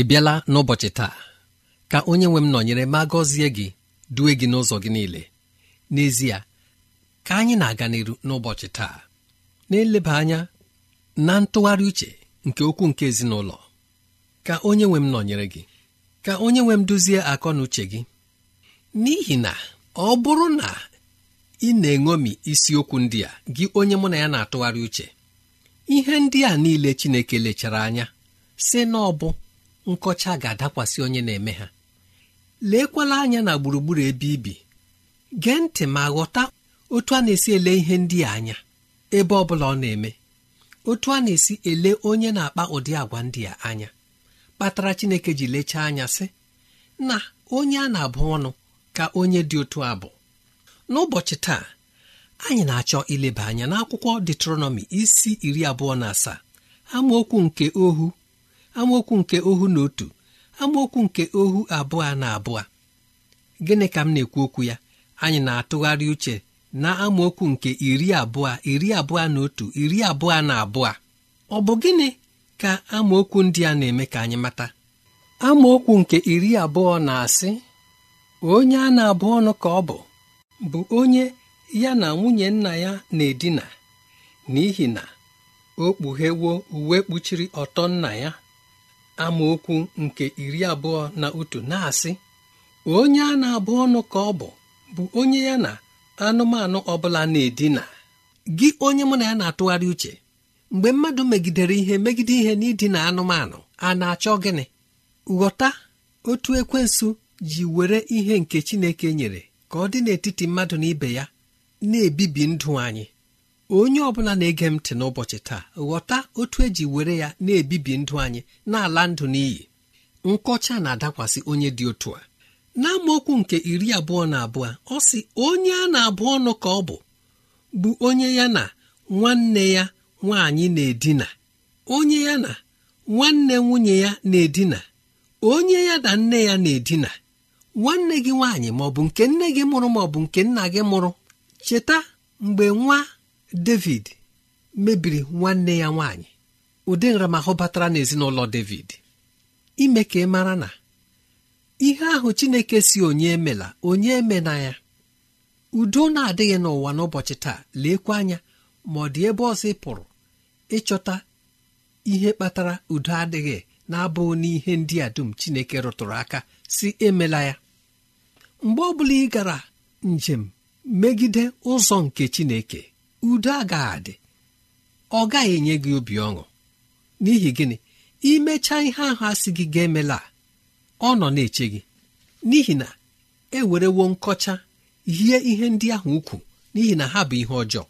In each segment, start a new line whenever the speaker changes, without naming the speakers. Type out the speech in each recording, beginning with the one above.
ị bịala n'ụbọchị taa ka onye nwe m nọnyere ma gọzie gị due gị n'ụzọ gị niile n'ezie ka anyị na-aga n'iru n'ụbọchị taa na-eleba anya na ntụgharị uche nke okwu nke ezinụlọ ka onye nwe m nọnyere gị ka onye nwe m duzie akọ na uche gị n'ihi na ọ bụrụ na ị na-eṅomi isiokwu ndị a gị onye mụ na ya na-atụgharị uche ihe ndị a niile Chineke lechara anya si na ọ bụ nkọcha ga-adakwasị onye na-eme ha leekwala anya na gburugburu ebe ibi gee ntị ma ghọta otu a na-esi ele ihe ndị a anya ebe ọ bụla ọ na-eme otu a na-esi ele onye na-akpa ụdị agwa ndị a anya kpatara Chineke ji lechaa anya sị na onye a na-abụ ọnụ ka onye dị otu abụ n'ụbọchị taa anyị na-achọ ileba anya n'akwụkwọ Deuteronomy isi iri abụọ na asaa amaokwu nke ohu amaokwu nke ohu na otu amaokwu nke ohu abụọ na abụọ gịnị ka m na-ekwu okwu ya anyị na-atụgharị uche na amaokwu nke iri abụọ iri abụọ na otu iri abụọ na abụọ ọ bụ gịnị ka amaokwu ndị a na-eme ka anyị mata amaokwu nke iri abụọ na-asị onye a na-abụ ọnụ ka ọ bụ bụ onye ya na nwunye nna ya na-edina n'ihi na o kpughewo uwe kpuchiri ọtọ nna ya amaokwu nke iri abụọ na otu na-asị onye a na-abụ ọnụ ka ọ bụ bụ onye ya na anụmanụ ọbụla na-edina gị onye mụ na ya na-atụgharị uche mgbe mmadụ megidere ihe megide ihe n'idina anụmanụ a na-achọ gịnị ghọta otu ekwensu ji were ihe nke Chineke nyere ka ọ dị n'etiti mmadụ na ibe ya na-ebibi ndụ anyị onye ọbụla na-ege m ntị n'ụbọchị taa ghọta otu eji were ya na-ebibi ndụ anyị na-ala ndụ n'iyi nkọcha na-adakwasị onye dị otu a n'amaokwu nke iri abụọ na abụọ ọ si onye a na-abụ ọnụ ka ọ bụ bụ onye ya na nwanne ya nwaanyị na-edina onye ya na nwanne nwunye ya na-edina onye ya na nne ya na-edina nwanne gị nwaanyị maọbụ nke nne gị mụrụ maọbụ nke nna gị mụrụ cheta mgbe nwa David mebiri nwanne ya nwaanyị ụdị nramahụ batara n'ezinụlọ David ime ka ị mara na ihe ahụ Chineke si onye emela onye emena ya udo na-adịghị n'ụwa n'ụbọchị taa leekwa anya ma ọ dị ebe ọzọ ị pụrụ ịchọta ihe kpatara udo adịghị na-abụghị n'ihe ndị a dum Chineke rụtụrụ aka si emela ya mgbe ọ bụla ị gara njem megide ụzọ nke Chineke udo agaghị adị ọ gaghị enye gị obi ọṅụ n'ihi gịnị imecha ihe ahụ asị gị ga-emela ọ nọ na-eche gị n'ihi na e werewo nkọcha yie ihe ndị ahụ ukwu n'ihi na ha bụ ihe ọjọọ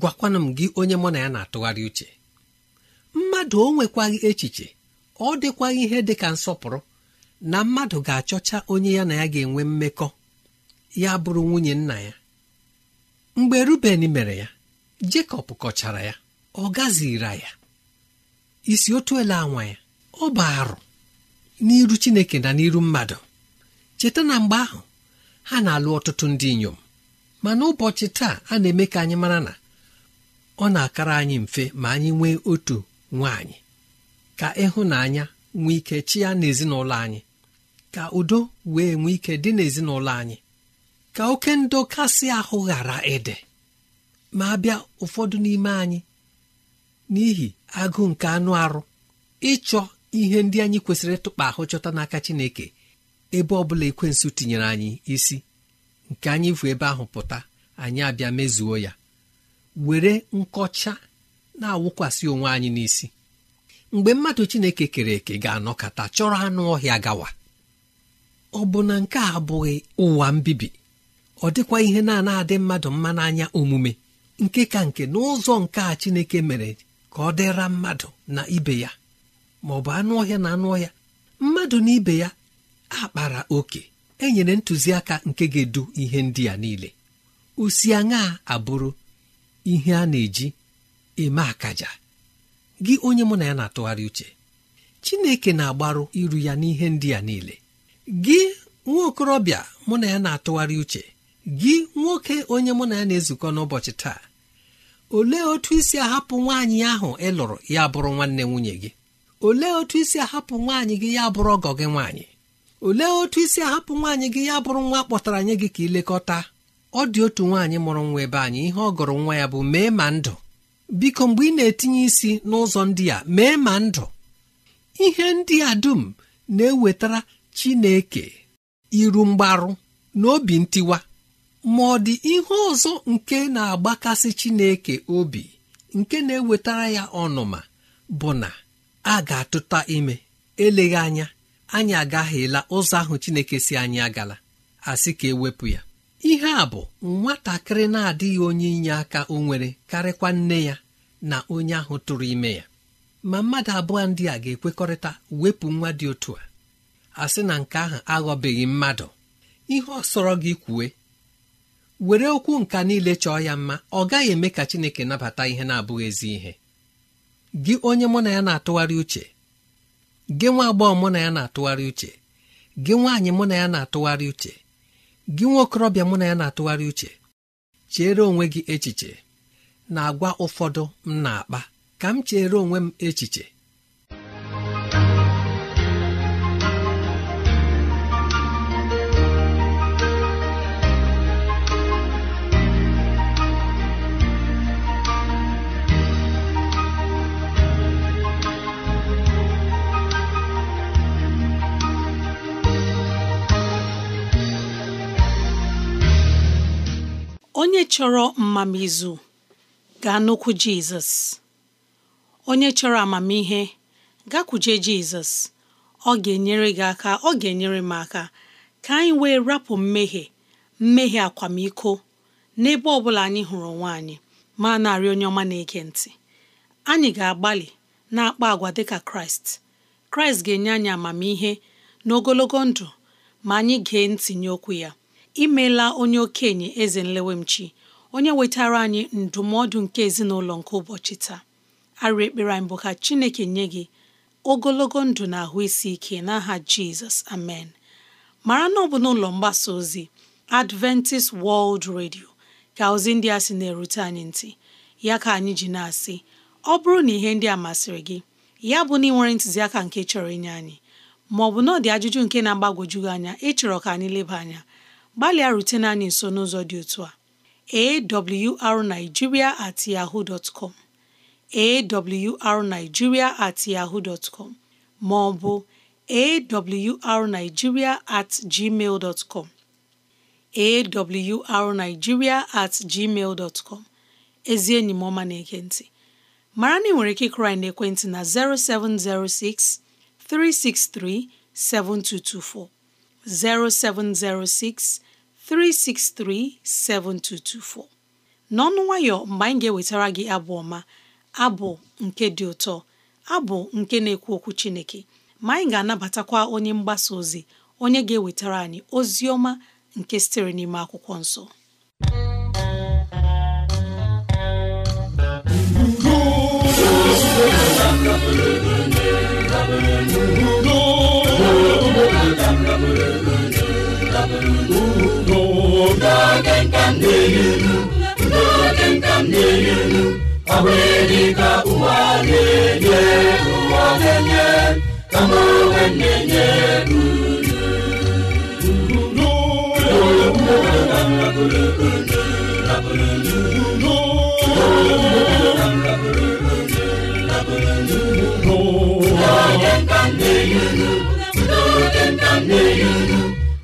gwakwana m gị onye mụ na ya na-atụgharị uche mmadụ o nwekwaghị echiche ọ dịkwaghị ihe dị ka nsọpụrụ na mmadụ ga-achọcha onye ya na ya ga-enwe mmekọ ya bụrụ nwunye nna ya mgbe ruben mere ya jekọb kọchara ya ọ gazira ya isi otu ele anwa ya ọ bụ arụ n'iru chineke na n'iru mmadụ cheta na mgbe ahụ ha na-alụ ọtụtụ ndị inyom mana ụbọchị taa a na-eme ka anyị mara na ọ na-akara anyị mfe ma anyị nwee otu nwaanyị ka ịhụnanya nwee ike chi ya n'ezinụlọ anyị ka udo wee nwee ike dị n'ezinụlọ anyị ka oke ndo kasị ahụ ghara ịdị ma abịa ụfọdụ n'ime anyị n'ihi agụụ nke anụ arụ ịchọ ihe ndị anyị kwesịrị ịtụkpa ahụ chọta n'aka Chineke ebe ọ bụla ekwensụ tinyere anyị isi nke anyị bụ ebe ahụ pụta anyị abịa mezuo ya were nkọcha na-awụkwasị onwe anyị n'isi mgbe mmadụ Chineke kere eke ga-anọkọta chọrọ anụ ọhịa gawa ọ bụ na nke a abụghị ụwa mbibi ọ dịkwa ihe na-ana adị mmadụ mma n'anya omume nke ka nke n'ụzọ nke a chineke mere ka ọ dịra mmadụ na ibe ya ma ọ bụ anụ ọhịa na anụ ọhịa mmadụ na ibe ya akpara oke enyere ntụziaka nke ga-edu ihe ndị a niile osi aṅa abụrụ ihe a na-eji eme akaja gị onye mụ na ya na-atụgharị uche chineke na-agbaru iru ya n'ihe ndị a niile gị nwa okorobịa mụ na ya na-atụgharị uche gị nwoke onye mụ na ya na-ezukọ n'ụbọchị taa olee otu isi ahapụ nwaanyị ahụ ị lụrụ ya bụrụ nwanne nwunye gị olee otu isi ahapụ nwaanyị gị ya bụrụ ọgọ gị nwaanyị olee otu isi ahapụ nwaanyị gị ya bụrụ nwa kpọtara anyị gị ka ilekọta ọ dị otu nwaanyị mụrụ nwa ebe anyị ihe ọ gụrụ nwa ya bụ mee ma ndụ biko mgbe ị na-etinye isi n'ụzọ ndị a mee ma ndụ ihe ndị a dum na-ewetara Chineke iru mgbarụ na obi ntiwa ma ọ dị ihe ọzọ nke na-agbakasị chineke obi nke na-ewetara ya ọnụma bụ na a ga-atụta ime eleghị anya anyị agaghịla ụzọ ahụ chineke si anyị agala asị ka ewepụ ya ihe a bụ nwatakịrị na-adịghị onye inye aka o nwere karịkwa nne ya na onye ahụ tụrụ ime ya ma mmadụ abụọ ndị a ga-ekwekọrịta wepụ nwa dị otu a asị na nke ahụ aghọbeghị mmadụ ihe ọ sọrọ gị kwue were okwu nka niile chọọ ya mma ọ gaghị eme ka Chineke nabata ihe na-abụghị ezi ihe gị onye mụ na ya na-atụgharị uche gị nwa agbọghọ mụ na ya na-atụgharị uche gị nwaanyị mụ na ya na-atụgharị uche gị nwa okorobịa mụ na ya na-atụgharị uche chere onwe gị echiche na agwa ụfọdụ m na-akpa ka m chere onwe m echiche
onye chọrọ mmamizu gaa n'okwu jizọs onye chọrọ amamihe gakwuje jizọs ọ ga-enyere gị aka ọ ga-enyere m aka ka anyị wee rapụ mmehie mmehie akwamiko n'ebe ọ bụla anyị hụrụ onwe anyị ma na-arị onye ọma na-ege ntị anyị ga-agbalị na-akpa agwa dịka kraịst kraịst ga-enye anyị amamihe n'ogologo ndụ ma anyị gee ntị nye okwu ya imeela onye okenye eze nlewemchi onye wetara anyị ndụmọdụ nke ezinụlọ nke ụbọchị taa arịa ekpere anyị bụ ka chineke nye gị ogologo ndụ na ahụ isi ike n'aha jizọs amen mara na ọ bụ n'ụlọ mgbasa ozi adventist world radio ka ozi ndị a sị na-erute anyị ntị ya ka anyị ji na-asị ọ bụrụ na ihe ndị a masịrị gị ya bụ na ị nwere ntụziaka nke chọrọ inye anyị maọbụ na ọ dị ajụjụ nke na-agbagwoju anya ịchọrọ ka anyị leba anya gbalịa rutene anyị nso n'ụzọ dị otu a awrnigeria at com at ma ọ bụ at gmail com ezi enyi m ọma na-ege ntị mara na ị nwere ike ịkụrụ anyị n'ekwentị na 0706 363 7224 0706 363 7224. n'ọnụ nwayọ mgbe anyị ga-ewetara gị abụ ọma abụ nke dị ụtọ abụ nke na-ekwu okwu Chineke ma anyị ga-anabatakwa onye mgbasa ozi onye ga-ewetara anyị ozi ọma nke sitere n'ime akwụkwọ nsọ
n'oge nka m na-ehi elu n'oge nka m na elu ọ ụwa na-enye ụwa na-enye kama onwe na-enye m na-ehi elu n'oge nka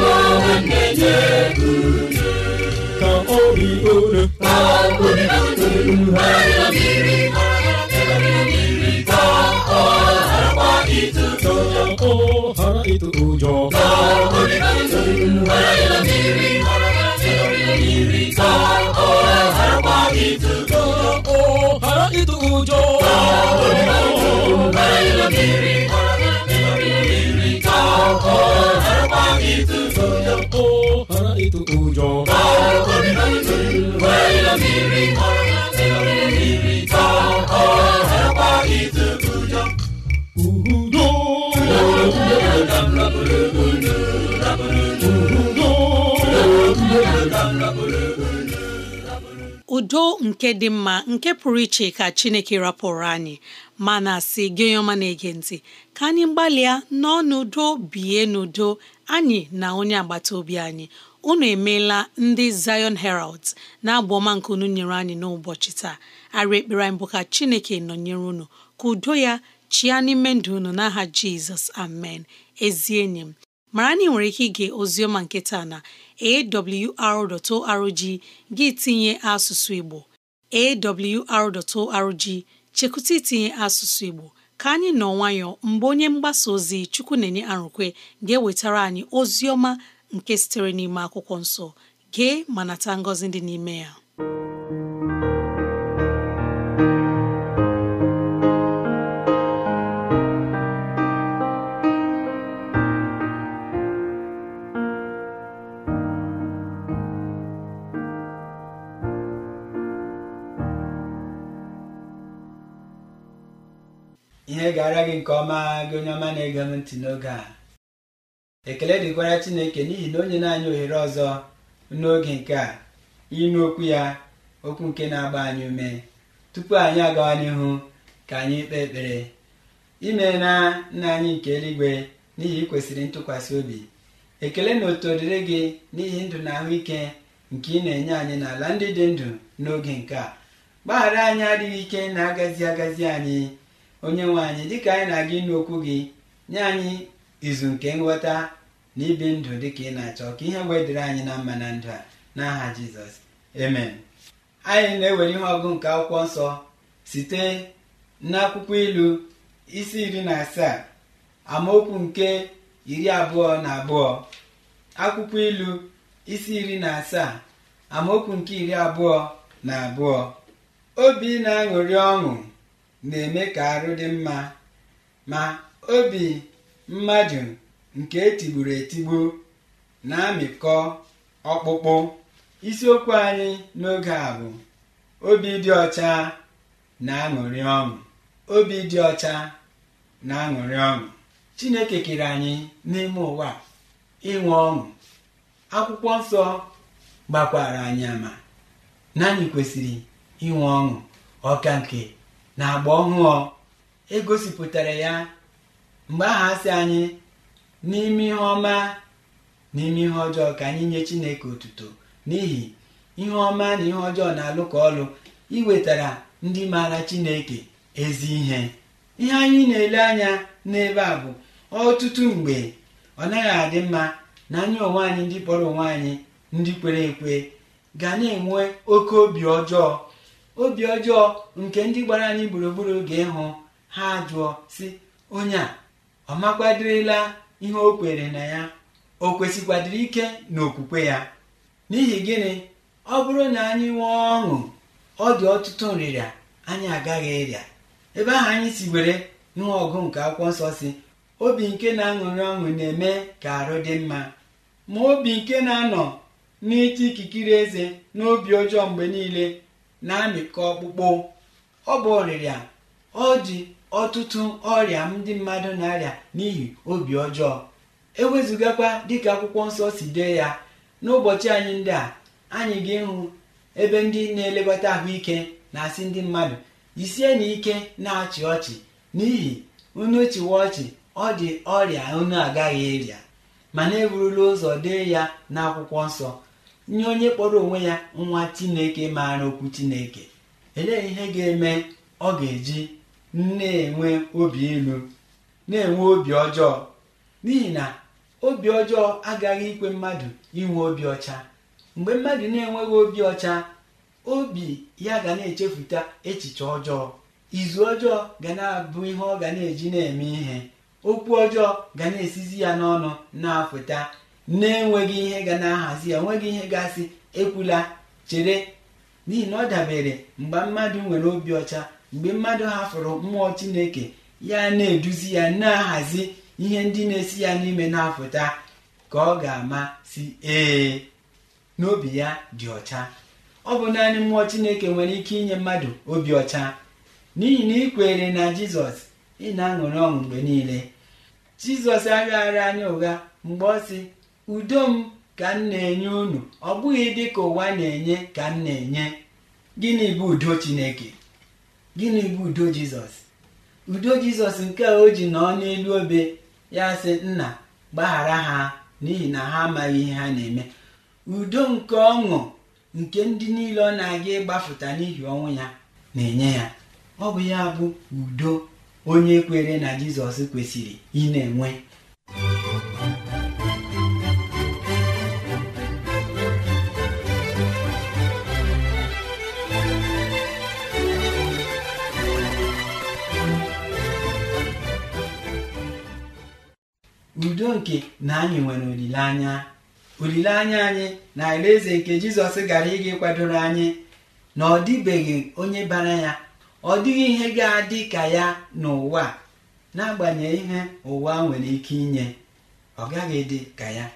ka obi unu ka obi unu ha mmiri mmiri ka ọ harakwa itu ụjọ ka ọ hara itu ụjọ ka obi unu ha mmiri mmiri ka ọ harakwa itu ụjọ ka ọ hara itu ụjọ ka obi unu ha mmiri ọkọ ẹ̀fẹ́ wá ìtújú kó ara
udo nke dị mma nke pụrụ iche ka Chineke rapụrụ anyị mana si gị onye ọma na-ege ntị ka anyị gbalịa nọọ n'udo bie n'udo anyị na onye agbata obi anyị unu emeela ndị Zion Heralds na-abụ ọma nke unu nyere anyị n'ụbọchị taa arị ekpere anyị bụ ka Chineke nọnyere unu ka udo ya chịa n'ime ndụ unu n'aha Jizọs amen ezi enyi m mara na ị nwere ike ige oziọma nke na awr.org gị tinye asụsụ Igbo awr.org chekwute itinye asụsụ Igbo ka anyị nọ nwayọọ mgbe onye mgbasa ozi Chukwu na-enye arụkwe ga-ewetara anyị ozi ọma nke sitere n'ime akwụkwọ nsọ gee ma nata ngọzi dị n'ime ya
nke ọma gị onye ọma na-ege m ntị n'oge a ekele dịkwara chineke n'ihi na onye na-anya ohere ọzọ n'oge nke a ịnụ okwu ya okwu nke na-agba anyị ume tupu anyị agawa n'ihu ka anyị kpee ekpere ime na nna anyị nke eluigwe n'ihi ị kwesịrị ntụkwasị obi ekele na otu dịrị gị n'ihi ndụ na ahụike nke ị na-enye anyị n'ala ndị dị ndụ n'oge nke a gbaghara anyị adịghị ike na-agazi agazi anyị onye nwe anyị dịka anyị na-aga ịnụ okwu gị nye anyị izu nke nghọta na ibi ndụ dịka ị na-achọ ka ihe wee dịrị anyị na mma na ndụ a n'aha jizọs emen. anyị na-ewere ihe ọgụ nke akwụkwọ nsọ site n'akwụkwọ ilu isi iri na asaa amaokwu nke iri abụọ na abụọ akwụkwọ ilu isi iri na asaa amaokwu nke iri abụọ na abụọ obi na-aṅụrị ọṅụ na-eme ka arụ dị mma ma obi mmadụ nke etigburu etigbu na-amịkọ ọkpụkpụ isiokwu anyị n'oge a bụ obi dị ọcha na-aṅụrị ọṅụ obi dị ọcha na-aṅụrị ọṅụ chineke kere anyị n'ime ụwa ịnwe ọṅụ akwụkwọ nsọ gbakwara anyị ama na anyị kwesịrị inwe ọṅụ ọka nke na agba ọhụụ egosipụtara ya mgbe aha si anyị n'ime ihe ọma n'ime ihe ọjọọ ka anyị nye chineke otuto n'ihi ihe ọma na ihe ọjọọ na-alụ ka ọlụ iwetara ndị maara chineke ezi ihe ihe anyị na-ele anya n'ebe a bụ ọtụtụ mgbe ọ naghị adị mma na anyị onwe anyị ndị kpọrọ onwe anyị ndị kwere ekwe ga na-enwe oke obi ọjọọ obi ọjọọ nke ndị gbara anyị gburugburu oge ịhụ ha jụọ si onye a ọ makwadirila ihe o kwere na ya o kwesịkwadịrị ike n'okwukwe ya n'ihi gịnị ọ bụrụ na anyị nwee ọṅụ ọ dị ọtụtụ nrịrịa anyị agaghị ịrịa ebe ahụ anyị si were nwa ọgụ nke akwụkwọ nsọ si obi nke na-aṅụrị ọṅụ na-eme ka arụ dị mma ma obi nke na-anọ n'ịchị ikikere eze n'obi ọjọọ mgbe niile na-amịkọ ọkpụkpụ ọ bụ ọrịrịa ọ dị ọtụtụ ọrịa ndị mmadụ na-arịa n'ihi obi ọjọọ ewezụgakwa dịka akwụkwọ nsọ si dee ya n'ụbọchị anyị ndị a anyị ga-ịhụ ebe ndị na-elekọta ahụike na-asị ndị mmadụ isie na ike na-achị ọchị n'ihi unu chịwa ọchị ọ dị ọrịa unu agaghị ịrịa mana eburula ụzọ dee ya n'akwụkwọ nsọ nye onye kpọrọ onwe ya nwa chineke maara okwu chineke elee ihe ga-eme ọ ga-eji na-enwe obi elu na-enwe obi ọjọọ n'ihi na obi ọjọọ agaghị ikwe mmadụ inwe obi ọcha mgbe mmadụ na-enweghị obi ọcha obi ya ga na-echefuta echiche ọjọọ izu ọjọọ ga na-abụ ihe ọ ga na-eji na-eme ihe okwu ọjọọ ga na-esizi ya n'ọnụ na-afụta na-enweghị ihe ga na-ahazi ya enweghị ihe gasị ekwula chere n'ihi na ọ dabere mgbe mmadụ nwere obi ọcha mgbe mmadụ hafụrụ mmụọ chineke ya na-eduzi ya na-ahazi ihe ndị na-esi ya n'ime na afụta ka ọ ga-ama si ee n'obi ya dị ọcha ọ bụ naanị mmụọ chineke nwere ike inye mmadụ obi ọcha n'ihi na ịkwere na jizọs ị na-aṅụrị ọṅụ mgbe niile jizọs agaghara anya ụgha mgbe ọ si. udo m ka m na-enye unu ọ bụghị dị ka ụwa na-enye ka m na-enye gịnị bụ udo Chineke gịnị bụ udo Jizọs udo Jizọs nke a o ji nọ n'elu obe ya sị nna gbaghara ha n'ihi na ha amaghị ihe ha na-eme udo nke ọṅụ nke ndị niile ọ na-aga ịgbafụta n'ihi ọnwụ ya na-enye ya ọ bụ ya bụ udo onye kwere na Jizọs kwesịrị ị na-enwe udo nke na anyị nwere olileanya olileanya anyị na alaeze nke jizọs gara ịga ịkwadoro anyị na ọ dịbeghị onye bara ya ọ dịghị ihe ga-adị ka ya n'ụwa n'agbanyeghị ihe ụwa nwere ike inye ọ gaghị dị ka ya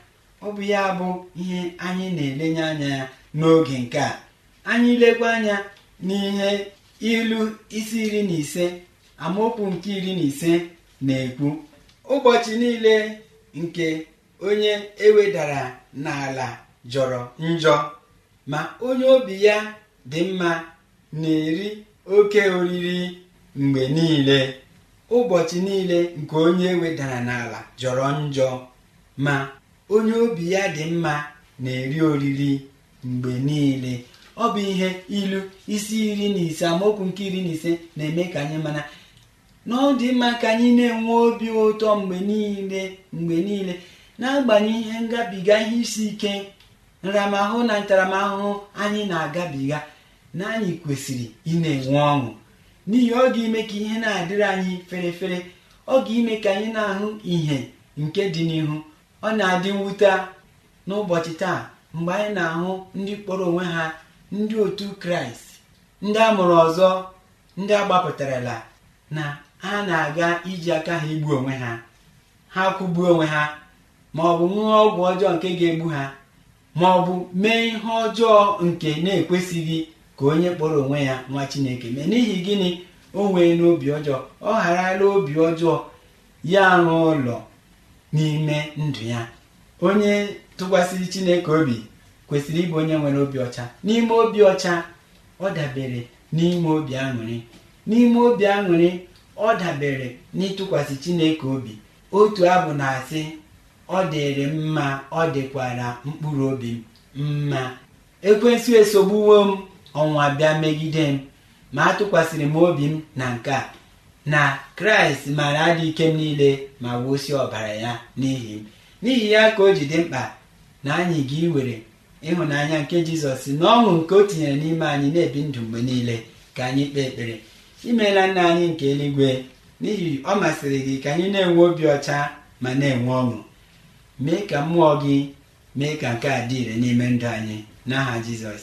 ọ bụ ya bụ ihe anyị na-elenye anya ya n'oge nke a anyị lekwa anya n'ihe ilu isi iri na ise amaokwu nke iri na ise na-ekwu ụbọchị niile nke onye ewedara n'ala jọrọ njọ ma onye obi ya dị mma na-eri oke oriri mgbe niile ụbọchị niile nke onye ewedara n'ala jọrọ njọ ma onye obi ya dị mma na-eri oriri mgbe niile ọ bụ ihe ilu isi iri na ise amaokwu nke iri na ise na-eme ka anyị mana. na mma ka anyị na-enwe obi ụtọ mgbe niile mgbe niile na-agbanye ihe ngabiga ihe isi ike nramahụ na ntaramahụhụ anyị na-agabiga na anyị kwesịrị ị na-enwe ọṅụ n'ihi ọ ga-eme ka ihe na-adịrị anyị fere fere ọ ga-eme ka anyị na-ahụ ihe nke dị n'ihu ọ na-adị mwute n'ụbọchị taa mgbe anyị na-ahụ ndị kpọrọ onwe ha ndị otu kraịst ndị a mụrụ ọzọ ndị agbapụtarala na ha na-aga iji aka ha igbu onwe ha ha kwụgbuo onwe ha ma ọ bụ ṅụọ ọgwụ ọjọọ nke ga-egbu ha ma ọ bụ mee ihe ọjọọ nke na-ekwesịghị ka onye kpọrọ onwe ya nwa Chineke mee n'ihi gịnị o nwee n'obi ọjọọ ọ gharala obi ọjọọ ya n'ụlọ ụlọ n'ime ndụ ya onye tụkwasịrị Chineke obi kwesịrị ịbụ onye nwere obi ọcha n'ime obi ọcha ọ dabere n'ime obi aṅụrị n'ime obi aṅụrị ọ dabere n'ịtụkwasị Chineke obi otu abụ na-asị ọ dịrị mma ọ dịkwara mkpụrụ obi m mma ekwensụ esogbuwo m ọnwa bịa megide m ma atụkwasịrị m obi m na nke a na kraịst maara adị ike m niile ma wụsị ọbara ya n'ihi m n'ihi ya ka o ji dị mkpa na anyị ga iwere ịhụnanya nke jizọs na ọṅụ nke o tinyere n'ime anyị na-ebi ndụ mgbe niile ka anyị kpee ekpere imeela nna anyị nke eluigwe n'ihi ọ masịrị gị ka anyị na-enwe obi ọcha ma na-enwe ọṅụ mee ka mmụọ gị mee ka nke a dị ire n'ime ndụ anyị n'aha Jizọs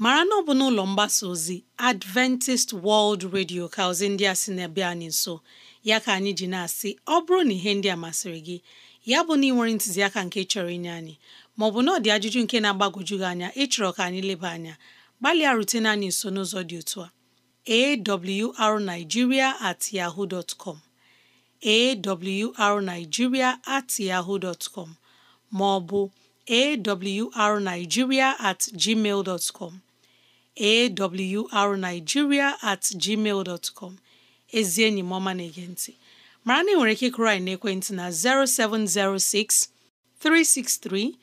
mara na ọ bụ n'ụlọ mgbasa ozi Adventist World Radio ka ozi ndị a sị na-abịa anyị nso ya ka anyị ji na-asị ọ bụrụ na ihe ndị a masịrị gị ya bụ na ị nwere ntụziaka nke chọrọ inye anyị maọbụ na ọ dị ajụjụ nke na-agbagwoju gị anya ịchọrọ ka anyị leba anya gbalịa rutene anyị nso n'ụzọ dị otu a arigiria at yahoo dtcom com awrnigeria at maọbụ awrnigeria at gmail dotcom awrnigeria at gmail dot com ezi enyi m ọma na-ege ntị mara na ị nwere ike kụrụ anyị n'ekwentị na 0706 363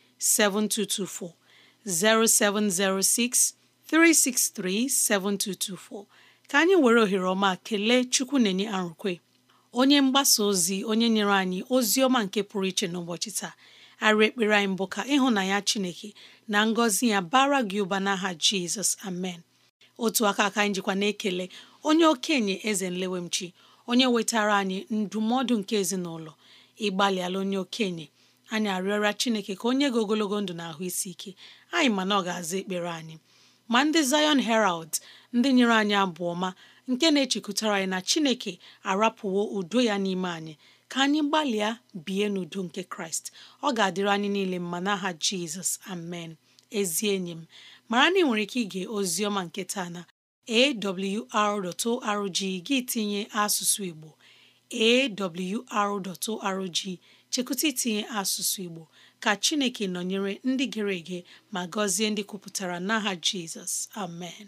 7224 ka anyị were ohere ọma kelee Chukwu na-enye arụkwe onye mgbasa ozi onye nyere anyị ozi ọma nke pụrụ iche n'ụbọchị taa arị ekpere anyị mbụ ka ya Chineke na ngọzi ya bara gị ụba n'aha Jizọs amen otu aka aka anyị jikwa na-ekele onye okenye eze nlewemchi onye wetara anyị ndụmọdụ nke ezinụlọ ịgbalịala onye okenye anyị arịọrịa Chineke ka onye gị ogologo ndụ na ahụ isi ike anyị mana ọ ga-aza ekpere anyị ma ndị Zion Herald ndị nyere anyị abụọ ma nke na-echekwutara anyị na Chineke arapụwo udo ya n'ime anyị ka anyị gbalịa bie n'udo nke kraịst ọ ga-adịrị anyị niile mma n'aha jizọs amen ezi enyi m mara na ị nwere ike ige ozi ọma nke taa na awr.org gị tinye asụsụ igbo awr.org chekụta itinye asụsụ igbo ka chineke nọnyere ndị gere ege ma gọzie ndị kwupụtara n'aha jizọs amen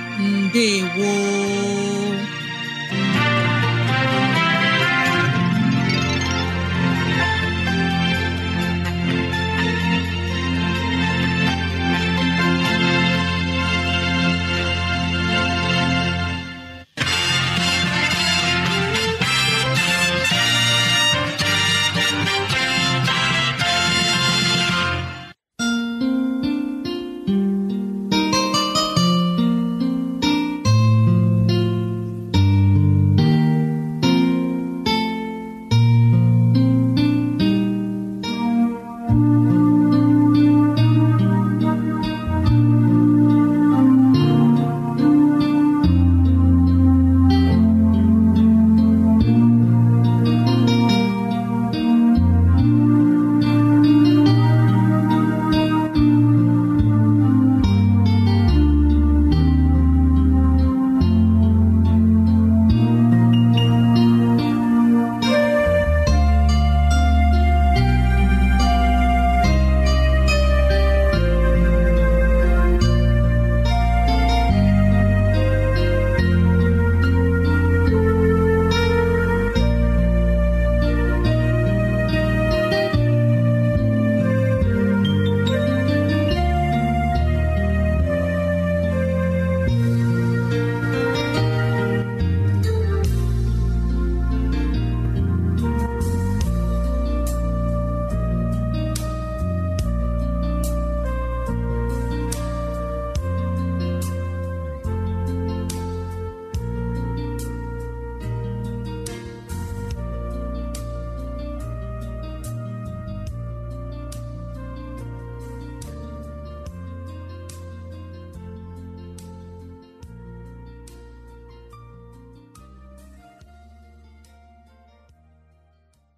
ndewo